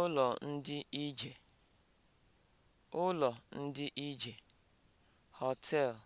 ụlọ ndị ije (ụlọ ndị ije), hoteelu